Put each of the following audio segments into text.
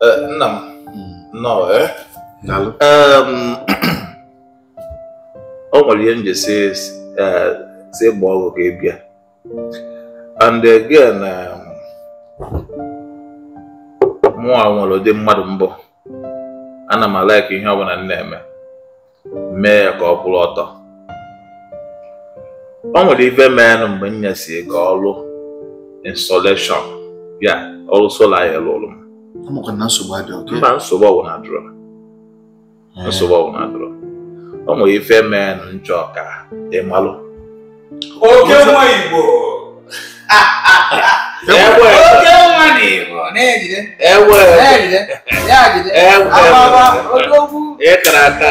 nna m nnọọ o nwere ihe nje si gba ọgwụ ka ị bịa and again mụnwa nwere ụdị mmadụ mbụ ana m alaiki ihe ọbụla m na-eme mee ya ka ọ bụrụ ọtọ o nwere ife meenụ mgbe m nyesi ka ọrụ insolation ya ọrụ sola ya lụrụ m ụmụ na nsogbu adịghị oke. Mba nsogbu ọwụ na adịrọ. Nsogbu ọwụ na ife mee na nchọ ka ị Oke nwa Igbo. E oke nwa na Igbo na-ejide. Ewe. Na-ejide. Ya jide. Ewe. Ababa odogwu. Ịkara aka.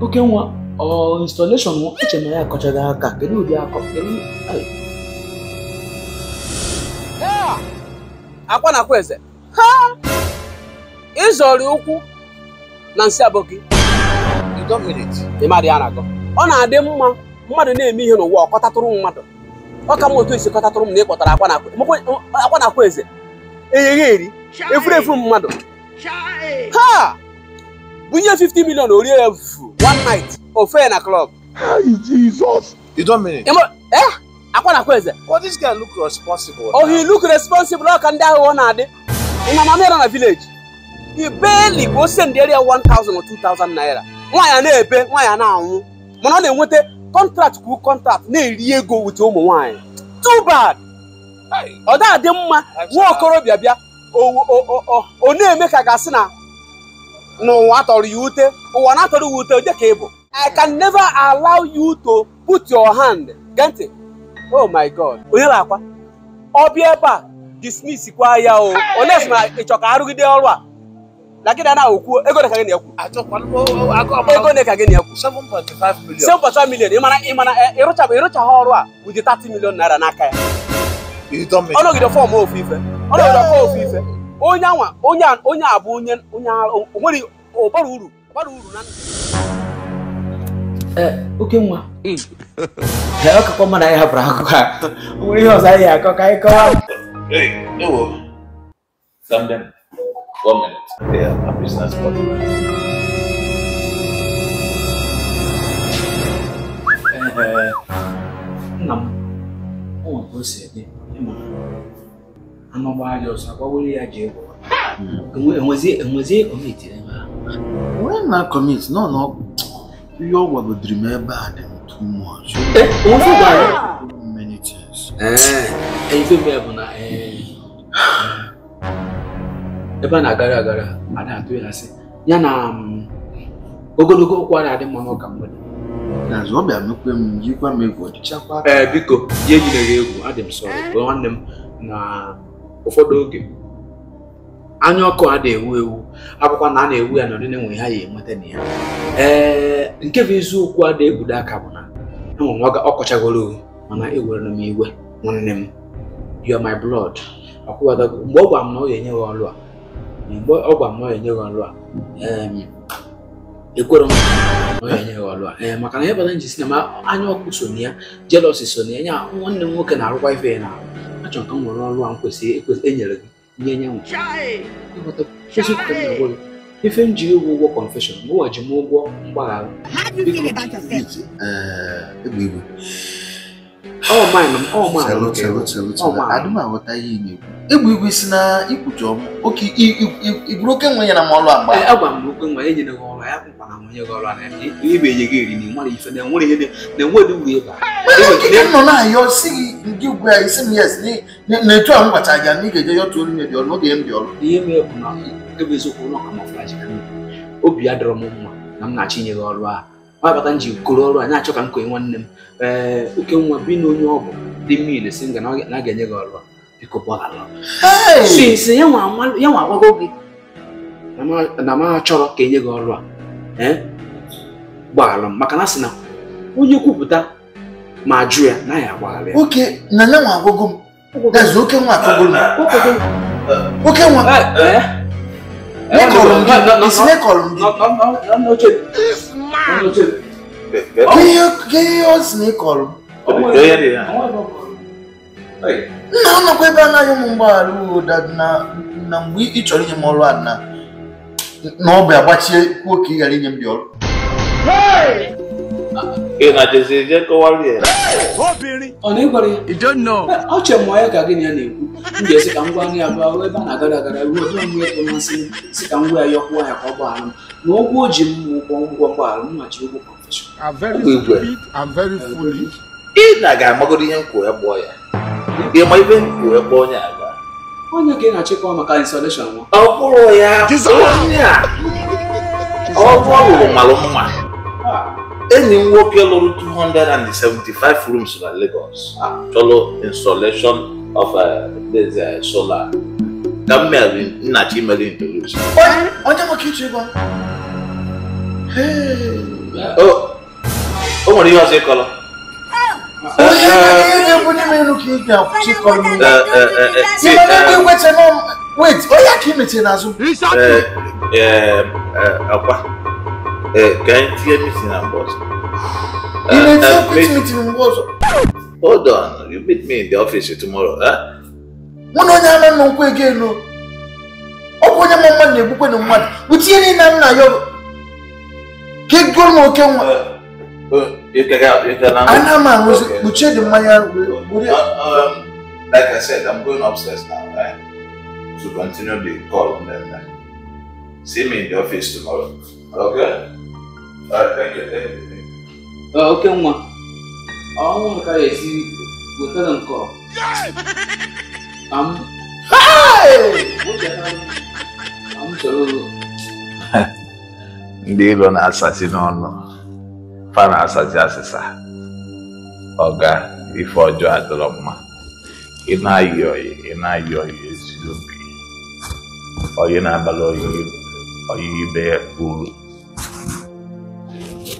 oke nwa ọ installation nwa eche na ya akọchaghị aka kedu ụdị akọ akwa na akwa eze ha ịzọrị ụkwụ na nsị abụọ gị ya na-agọ ọ na-adị mma mmadụ na-eme ihe n'ụwa ọ kọtatụrụ mmadụ ọ ka mma otu esi kọtatụrụ m na ịkpọtara akwa na akwa eze eyeghe eri efuru mmadụ ha bunye fifty million ori ẹ fu one night ofe na club. hi jesus. you don't mean it. imo eh akwanakwa eze. but this guy look responsible. oh he look responsible ọ ka ndị ahụ ọ na-adị. ina mama na village. he barely go send the area 1,000 or 2,000 naira. Why are they ebe Why are anwụ mana ọ na-enweta contract kwuru contract na-eri go with ụmụ nwaanyị. too bad. ọ dị adị mma nwa okorobịa bịa o na-eme ka gasị na n'ụwa tọrọ ya ute ụwa na-atọrọ ya ute dịka ịbụ I can never allow you to put your hand gee ntị oh my god onye na-akwa ọ bịa ebe a dismiss kwa ya o onye sị na ịchọ ka arụgide ọrụ a na gịnị na okwu ego na ka gị na-ekwu ego na ka gị na-ekwu five million ịmana ịmana ịrụchaghị ọrụ a with thirty million naira n'aka ya ọ nọgide fọm ofu ife ọ nọgide fọm ofu ife onye anwa onye onye abụ onye onye onwere ọbara uru ọbara uru na eh, oke nwa ọ kakwa mmadụ anyị hapụrụ akụkọ a nwere ihe ọzọ anyị akọ ka anyị kọwa ewo Zamdem, one minute. They are a business partner. Eh, nna m, ọ nwere ka o si ede, ama baada ya sababu wewe aje kwa enwezi enwezi commit na when na commit no no you were the dreamer bad too much eh what's that many things eh e eh so me abuna eh ebe a na-agara agara a na-atụ ya asị ya na mm, ogologo okwu a na-adị mma n'ụka mgbede n'azụ ọ bịa mekwe m jikwa m egwu ọdịchakwa ee biko ji ejideghị egwu adị m sọrọ nwanne m na ụfọdụ oge anya ọkụ a na-ewu ewu akwụkwọ na a na-ewu ya n'ọdịnihu enwe ha ya enweta na ya ee nke bụ eziokwu a na-egbudo aka bụ na enwere nwa ọkọchagoro mana ewere m iwe nwanne m you are my blood akwụwadago mgbe ọ gwara m na ọ ga-enye gị ọlụ a mgbe ọ gwara m na ọ ga-enye gị ọlụ a ekwere m na ọ ga-enye gị ọlụ a ee maka na ya bata ji si na anya ọkụ so na ya jealousy so na ya nwanne m nwoke na-arụkwa ife ya na achọrọ ka m nwere ọrụ a m kwesịrị enyere gị nye nyanwụ ife m ji ịwụ ụgwọ kọnfeshọn mụnwa ji m ụgwọ mgbaghara ọ maịnụ m ọ maịnụ adịm aghọta ihe ị na-ekwu egwu igwe si na ikwucha ọmụ oke igburu oke nwe ya na ma ọlụ agba agwa m oke nwe enyere gị ọrụ ya kwụkwa na nwunye gị ọrụ a ebe enye gị eri na ịmara ife na enwere ihe na enwere uru ịba ị nọ na-ayọ si gị ndị ugwu ya isi m yes na-etu ahụ gwacha gị na ị ga-eje yọta olu mebi ọrụ n'oge m dị ọrụ ihe m bụ na ebe eziokwu ụlọ kamọflaji obi ya dọrọ m mma na m na-achọ inye gị ọrụ ahụ gbata m ji ọrụ a na-achọ ka m kee nwanne m ee oke nwa bi na onye ọgwụ dị mmiri si na a ga-enye gị ọrụ biko ya nwa agwago gị na m achọrọ ka enye gị ọrụ a e, gbaghalụ m maka na sị na onye kwupụta ma jụ ya na ya agbaghara ya oke nwa agwago m oke nwa eh. nna m nakwa ebe anaghị ụmụ mgbaghara na mgbe ị chọrọ inye m ọrụ a na ọbịa gbachie ghara inye m dị ọrụ ịnajizi je kọwara ya ọ na-egbara ya ọchọ mụọ ya ka gị na ya na-ekwu m ga-esi ka m gwa nri abụọ ruo ebe a na-agara agara ruo onye onwe ya masị m si ka m gwa ya yọkwuo ya ka ọ gbaa m na ụgwọ o ji m ụgwọ ụgwọ mgbaghara m machi ụgwọ kọnfeshọn ị na-aga amagodo ihe m kwuo ya gbụọ ya ịma ibe m kwuo ya gbụọ onye aga onye ka ị na-achịkwa maka insolation nwa ọ bụrụ ya onye a ọ bụrụ mara mma enyi m nwoke lụrụ 275 rooms na Lagos achọlụ ah, installation of uh, uh, solar ka m mere nna chimere introduce onye nwoke iche ego o nwere ihe ọzọ ịkọrọ wait onye aka imechie n'azụ akwa Uh, can you hear me sing and boss? Uh, you may uh, meet me in WhatsApp. Hold on, you meet me in the office tomorrow, huh? One on your man won't no. Oh, when your man you book on the month, which you need now, you keep going, okay? You can help, you can help. I know, man, we check the like I said, I'm going upstairs now, right? To continue the call on them. See me in the office tomorrow. Okay? oke nwa ọnwụ nka ya esi wetara nke ndị ilo na-asazi n'ọnụ fa na-asazi asịsa ọga ife ọjọọ adịrọ mma ị na-ayị oyi ị na-ayị oyi ezigbo oyi na-abalị oyi oyi ibe uru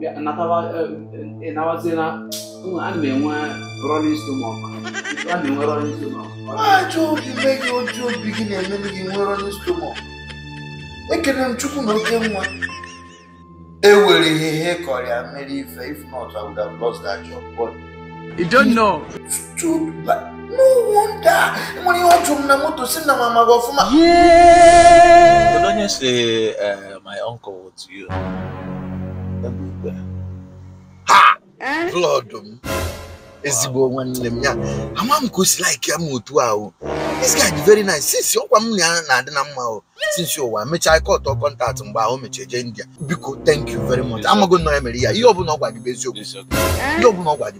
nabatina e, e, e, a na-enwe rolling stomach a na-enwe rolling stomach ajọ ojii obi gị na-eme gị nwee rolling stomach ekele m chukwu na oke nwa e ihe ihe kọrọ mere ife if not i would have lost that job but you don't know stupid no wonder nwere ihe ọjụ m na moto si na mama gị ọfụma uh, my uncle to you ha blood eh? m um, ezigbo nwanne m ya ama m ka o si like ya m otu ahụ this guy dị very nice since ọkwa m na-adị na mma ahụ since ụwa mechaa ike ọtọ kọntaktị mgbe ahụ mechie jee India biko thank you very much amago nnọọ ya mere ya ihe ọbụla ọ gwa gị bụ eh? ihe ọbụla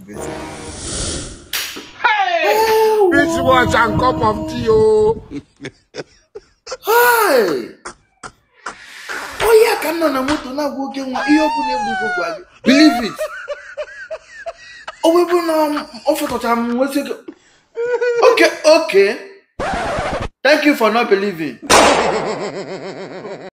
ka nọ na moto na-agwa oke nwa ihe ọbụla egbugo gwa gị biliv it ọ webụ na ọ um, fọtọchara m nwesị gị oke oke thank you for not believing